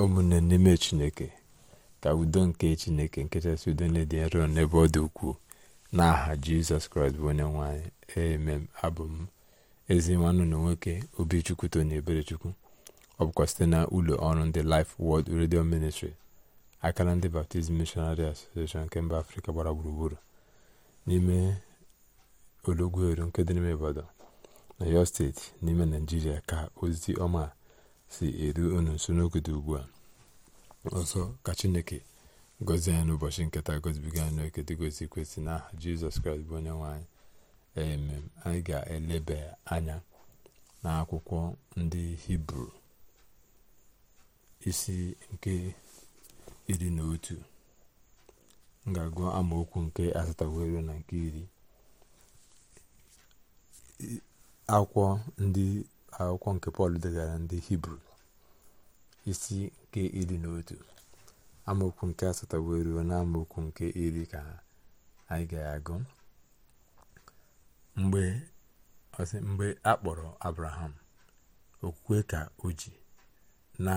ụmụnne n'ime chineke ka udo nke chineke nkechasị udo na-edị nro n'ebe ọ dị ukwuu n'aha jizọs kraịst bụ onye nwanyị emem abụ m ezi nwanne na nwoke obichukwu tony eberechukwu ọ bụkwa site na ụlọ ọrụ ndị Life Word redio Ministry akara ndị baptizim Missionary Association nke mba afrịka gbara gburugburu n'ime ologweru nke dị n'ime obodo na yo steeti n'ime naijiria ka ozi ọma si eru unu nso n'oge dị ugbu a ọzọ ka chineke gọzie anyị n'ụbọchị nketa gozibiga anyị n'oke dịgozi kwesị n'aha jizọs kraịst bụ onye nwanyị emem anyị ga-eleba anya n'akwụkwọ ndị hibru isi nke iri na otu ga amaokwu nke asatawero na nke iri akwụkwọ ndị akwụkwọ nke pọl degara ndị hibru isi nke iri na otu amaokwu nke asatọ wee ruo na amaokwu nke iri ka anyị ga-agụ mgbe mgbe a kpọrọ abraham okwukwe ka o ji na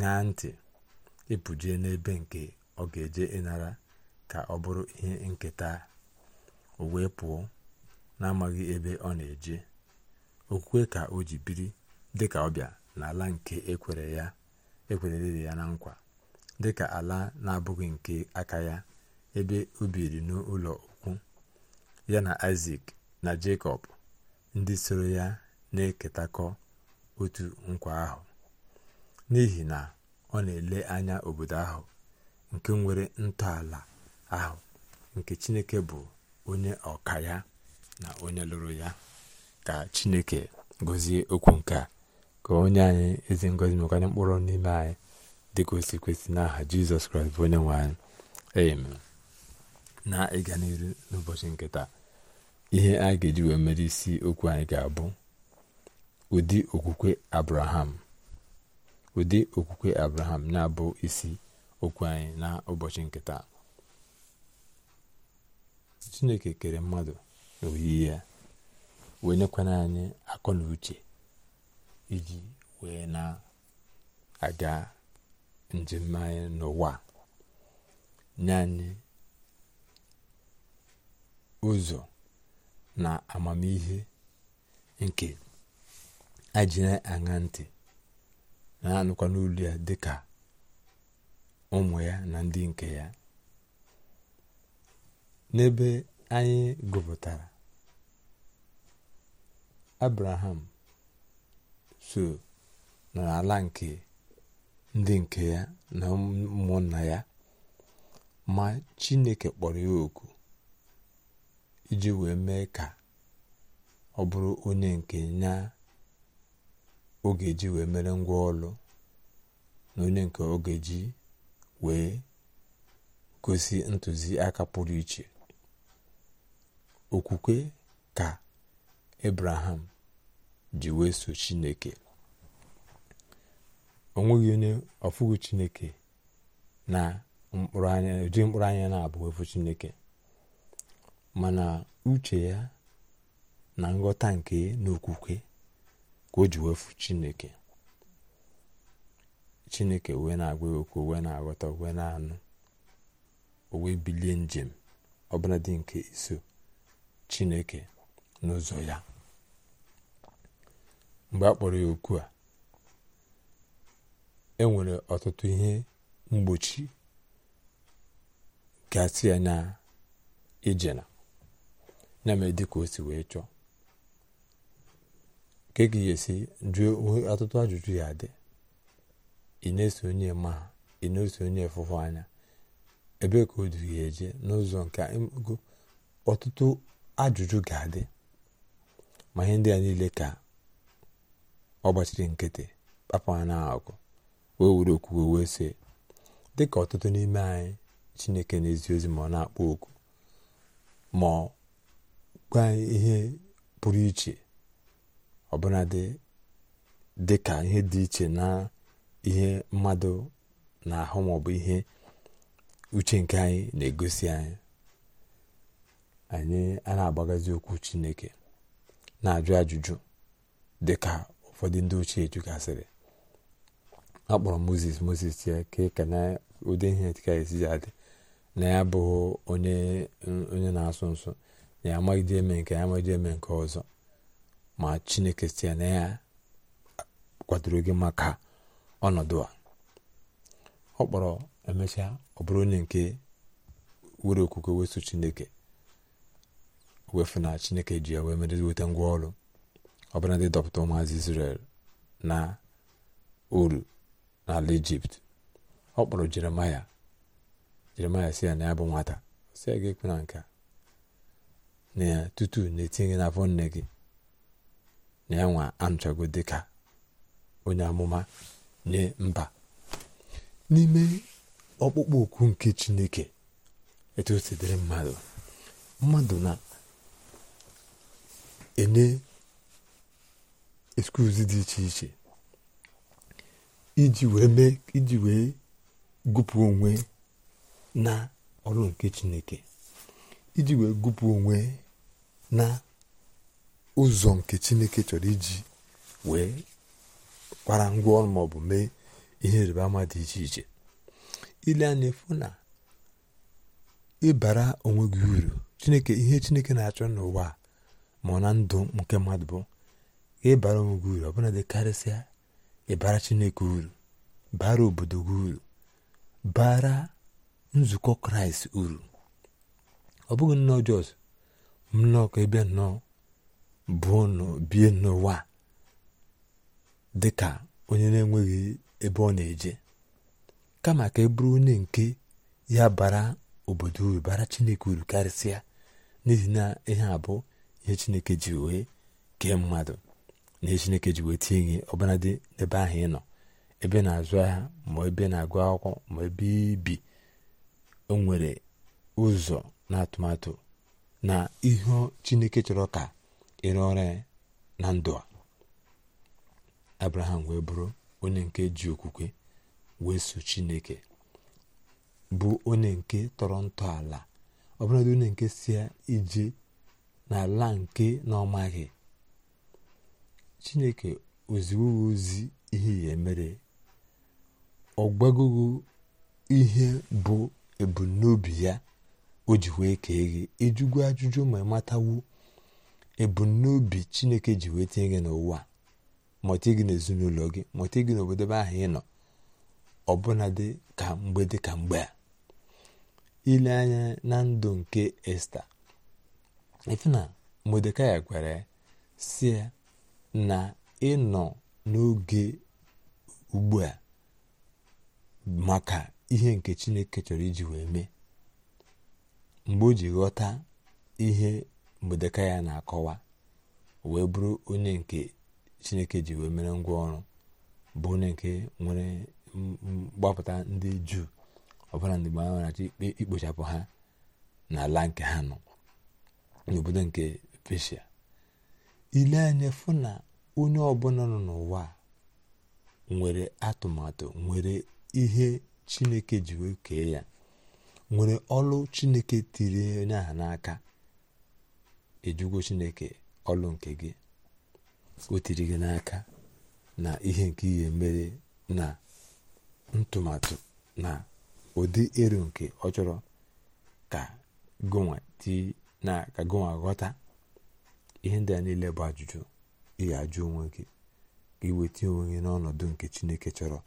ṅa ntị ịpụjie e n'ebe nke ọ ga-eje ịnara ka ọ bụrụ ihe nketa o wee pụọ n'amaghị ebe ọ na-eje okwukwe ka o ji biri dịka ọbịa n'ala nke ekwere e ya na nkwa dịka ala na-abụghị nke aka ya ebe o biri n'ụlọ ukwu ya na isak na jekọb ndị soro ya na-eketakọ otu nkwa ahụ n'ihi na ọ na-ele anya obodo ahụ nke nwere ntọala ahụ nke chineke bụ onye ọka ya na onye lụrụ ya ka chineke gọzie okwu nke a ka onye anyị ezi ngọzi mekwanye mkpụrụ n'ime anyị dịka o kwesị n'aha jizọs kraịst bụ onye nwe anyị na ịga n'iru n'ụbọchị nke taa ihe a ga-eji wee mere isi okwu anyị ga-abụ ụdị okwukwe abraham ụdị okwukwe abraham na-abụ isi okwu anyị na ụbọchị nke taa chineke kere mmadụ n'oyiyi ya wee nyekwana anyị akọ na uche iji wee na-aga njem anyị n'ụwa nye anyị ụzọ na amamihe nke na aṅa ntị na-anụkwa n'olu ya dịka ụmụ ya na ndị nke ya n'ebe anyị gụpụtara abraham so nọ n'ala nke ndị nke ya na ụmụnna ya ma chineke kpọrọ ya oku iji wee mee ka ọ bụrụ onye nke ya oge ji wee mere ngwa ọlụ na onye nke oge ji wee gosi ntụziaka pụrụ iche okwukwe ka Abraham ji wee chineke o nweghị onye ọfụghị chineke na anya ụdị mkpụrụ na-abụ efu chineke mana uche ya na nghọta nke n'okwukwe ka o ji wefu chineke chineke wee na-agwa okwu wee na-aghọta wee na-anụ o wee bilie njem ọbụla dị nke iso chineke n'ụzọ ya mgbe a kpọrọ ya oku a e nwere ọtụtụ ihe mgbochi gasị ya na ijena ya mere dịka o wee chọọ nke gị ga-esi jụọ ọtụtụ ajụjụ ya dị ị na-eso onye ma ha ị na-eso onye fụfụ anya ebe ka o ya eje n'ụzọ nke ọtụtụ ajụjụ ga-adị ma ihe ndị a niile ka ọ gbachiri nkịtị papa na agụ wee were okwukwe wee sị dị ka ọtụtụ n'ime anyị chineke na-ezi ozi ma ọ na-akpọ oku ma ọ gwa ihe pụrụ iche ọbụla dị ka ihe dị iche na ihe mmadụ na-ahụ bụ ihe uche nke anyị na-egosi anyị anyị a na-agbagazi okwu chineke na-ajụ ajụjụ dịka ụfọdụ ndị ochie chụgasịrị a kpọrọ moses moses ya ka na ụdị ihe dịka esi na ya abụghị onye na-asụ nsụ na ya amaghịde eme nke ya amaghịde eme nke ọzọ ma chineke si ya na ya kwadoro gị maka ọnọdụ a ọ kpọrọ emechaa ọ bụrụ onye nke were okwukwe weso chineke wefụ na chineke ji ya wee nweta weta ngwa ọrụ ọbụla dị dọpụta ụmụazị israel na olu n'ala ijipt ọ kpọrọ jeremaya jeremaya si ya na ya bụ nwata si ya ga-ekwe na nka na ya tutu na-etinye n'afọ nne gị na ya nwa anụchago dịka onye amụma nye mba n'ime ọkpụkpọ okwu nke chineke etu o si dịrị mmadụ mmadụ na-enye eskuz dị iche iche iji wee mee iji wee gụpụ onwe na ọrụ nke chineke iji wee gụpụ onwe na ụzọ nke chineke chọrọ iji wee kwara ngwa ọrụ maọbụ mee ihe ịrịba ama dị iche iche ile anya efu na ịbara onwe gị uru chineke ihe chineke na-achọ n'ụwa ma na ndụ nke mmadụ bụ ịbara bara gị uru ọbụla dị karịsịa ịbara chineke uru bara obodo gị uru bara nzukọ kraịst uru ọ bụghị nnọọ jos nnọọ ka ebe nnọọ bụọ bie n'ụwa dị ka onye na-enweghị ebe ọ na-eje kama ka e bụrụ onye nke ya bara obodo uru bara chineke uru karịsịa n'ihi na ihe a bụ ihe chineke ji wee kee mmadụ na chineke ji wee ihe gị ebe dị n'ebe ahụ ị nọ ebe na-azụ ahịa ma ebe na-agụ akwụkwọ ma ebe ibi o nwere ụzọ na atụmatụ na ihe chineke chọrọ ka ịrụ ọrụ ya na ndụ a abraham wee bụrụ onye nke ji okwukwe wee so chineke bụ onye nke tọrọ ntọala ọbụladị onye nke si ije n'ala nke na ọmaghị chineke oziwogo ozi ihe ya emere gbagogo ihe bụ ebumnobi ya o ji wee kee gị ịjụgo e ajụjụ ma matawu ebumnobi chineke ji wee tinye gị n'ụwa mọta gị n'ezinụlọ gị mọta gị n'obodo ahụ ị nọ ọbụnadị ka mgbe dị ka mgbe a ile anya na ndụ nke esta ife na modekai gwara ya si ya na ịnọ n'oge ugbu a maka ihe nke chineke chọrọ iji wee mee mgbe o ji ghọta ihe mgbedeka ya na-akọwa wee bụrụ onye nke chineke ji wee mere ngwa ọrụ bụ onye nke nwere mgbapụta ndị juu ọbụla ndị mgbe ha achọ ikpe ikpochapụ ha n'ala nke ha nọ n'obodo nke peshia ile anya fụ na onye ọbụla nọ n'ụwa nwere atụmatụ nwere ihe chineke ji kee ya nwere ọlụ chineke tiri onye ahụ n'aka ejugo chineke ọlụ nke gị o tiri gị n'aka na ihe nke ihe mere na ntụmatụ na ụdị eru nke ọ chọrọ ka gụnwa tii na ka gụnwa ghọta ihe ndị a niile bụ ajụjụ ị ga-ajụ onwe gị ka ị onwe gị n'ọnọdụ nke chineke chọrọ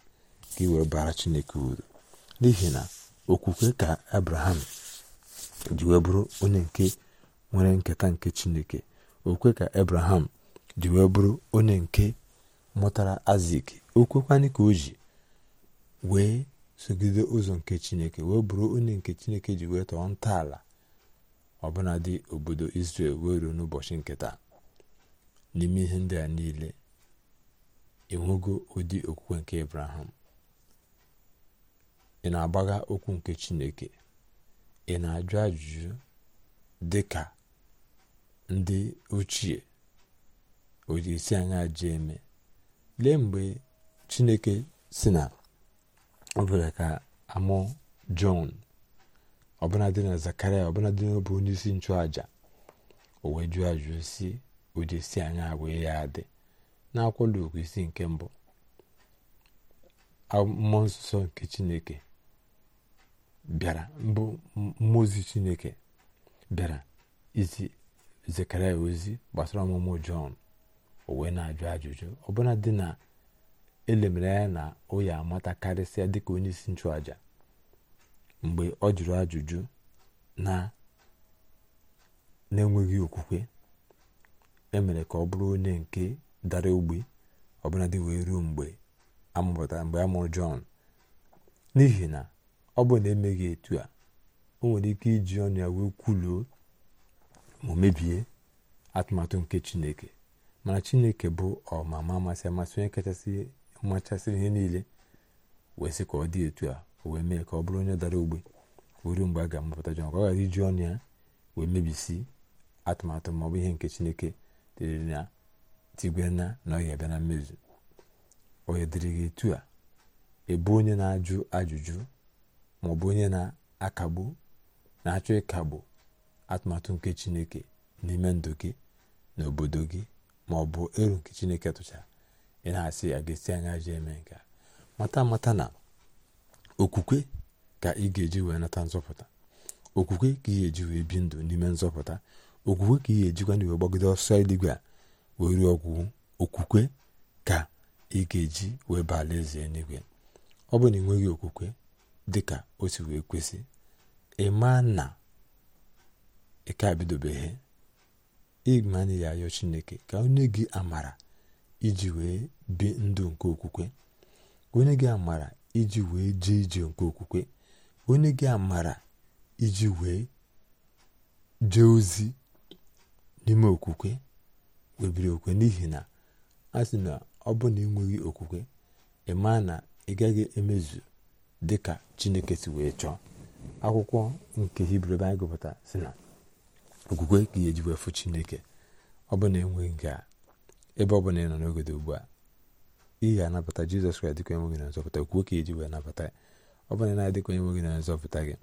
ka ị wee bara chineke uru n'ihi na okwukwe ka abraham ji wee bụrụ nke nwere nketa nke chineke okwukwe ka abraham ji wee bụrụ onye nke mụtara azik okwekwanị ka o ji wee sogide ụzọ nke chineke wee bụrụ onye nke chineke ji wee tọọ ntọala dị obodo Israel wee ruo n'ụbọchị nketa n'ime ihe ndị a niile enwego ụdị okwukwe nke Abraham ị na-agbagha okwu nke Chineke ị na-ajụ ajụjụ dị ka ndị ochie o ji esi anya ji eme lee mgbe Chineke si na ọ bụla ka amụọ Jọn ọbụladị na zakarịa na n'obe onye isi nchụaja o wee ajụjụ si ụdị si anya agwa ya adị n'akwụkwọ Luk isi nke mbụ mmụọ nsọ nke chineke bịara mbụ mmụọ chineke bịara izi zekaria ozi gbasara ọmụmụ jọn o wee na-ajụ ajụjụ ọbụla dị na elemere na o amatakarịsịa karịsịa dịka onye isi nchụaja mgbe ọ jụrụ ajụjụ na na-enweghị okwukwe emere ka ọ bụrụ onye nke dara ogbi ọbụladị wee ruo mgbe amụpụtara mgbe a mụrụ Jọn n'ihi na ọ bụ na emeghị etu a o nwere ike iji ọnụ ya wee kwuluo ma mebie atụmatụ nke Chineke mana Chineke bụ ọmama amasị amasị onye kachasị machasịrị ihe niile wee sị ka ọ dị etu a o wee mee ka ọ bụrụ onye dara ogbe ruo mgbe a ga-amụpụta Jọn ka ọ ghara iji ọnụ ya wee mebisi atụmatụ ma ọ bụ ihe nke chineke dịrị na tigwe na na ọ bịa na mmezu onye dịrị gị etu a ebu onye na-ajụ ajụjụ ma ọ bụ onye na-akagbu na-achọ ịkagbu atụmatụ nke chineke n'ime ndụ gị na obodo gị ma ọ bụ eru nke chineke tụchara ị na-asị a ga-esi anya ji eme nke mata mata na okwukwe ka ị ga-eji wee nata nzọpụta okwukwe ka ị ga-eji wee bi ndụ n'ime nzọpụta okwukwe ka ị ga-ejikwa na iwe gbagide ọsọ eluigwe a wee ruo okwukwe ka ị ga-eji wee baa alaeze eluigwe ọ bụ na ị nweghị okwukwe dị ka o si wee kwesị ịma na ịka bidobeghị ịma na ya ayọ chineke ka onye gị amara iji wee bi ndụ nke okwukwe onye gị amara iji wee jee ije nke okwukwe onye gị amara iji wee jee ozi n'ime okwukwe webiri okwukwe n'ihi na a sị na ọ bụ na enweghị okwukwe ịma na ị gaghị emezu dị ka chineke si wee chọọ akwụkwọ nke hibru ebe anyị gụpụta si na okwukwe ka eji wee chineke ọ bụ na enweghị nke a ebe ọ bụla ị nọ n'ogodo ugbu a ihe anabata jizọs kraịst dịka onye nwe gị na nzọpụta kwuo ka eji wee nabata ọ bụrụ na adịkwa adịka onye gị na nzọpụta gị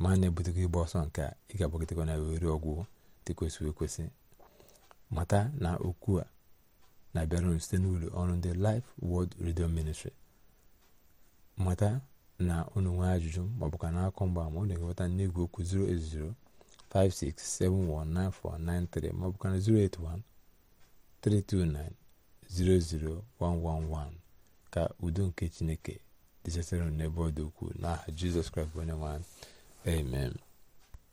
ma a na ebutego ịgba ọsọ nke a ị ga-agbagịtekwa na were ọgwụ dị kwesịrị ekwesị mata na okwu a na-abịara site n'ụlọ ọrụ ndị Life wọld redio ministri mata na unu nwee ajụjụ maọbụ ka na-akọ mgbaama unu ga-enweta n'igwe okwu 080 56719493 maọbụ ka na 081 329 00111 ka udo nke chineke dịchasịrị n'ebe ọ dị ukwuu n'aha jizọs kraịst bụ onye nwe amen